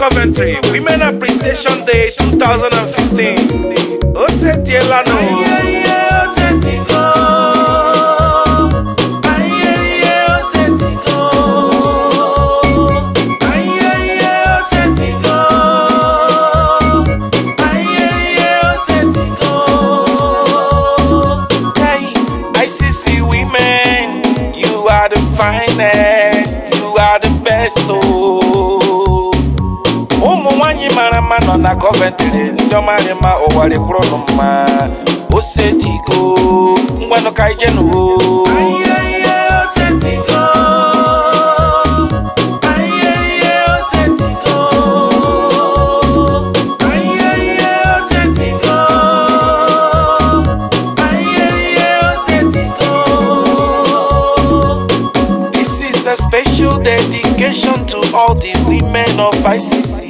Coventry, Women Appreciation Day 2015. Oseti Elano. Aye, aye, go. Aye, aye, go. Aye, aye, go. Aye, aye, go. Women, you are the finest. You are the best, oh. ọma na Coventry ndị ọma rị mma ụwa rekwuru nụ mma osetigo ngwanụ ka ije This is a special dedication to all the women of ICC.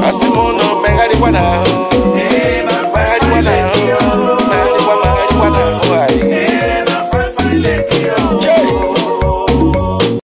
asimono mengalikwana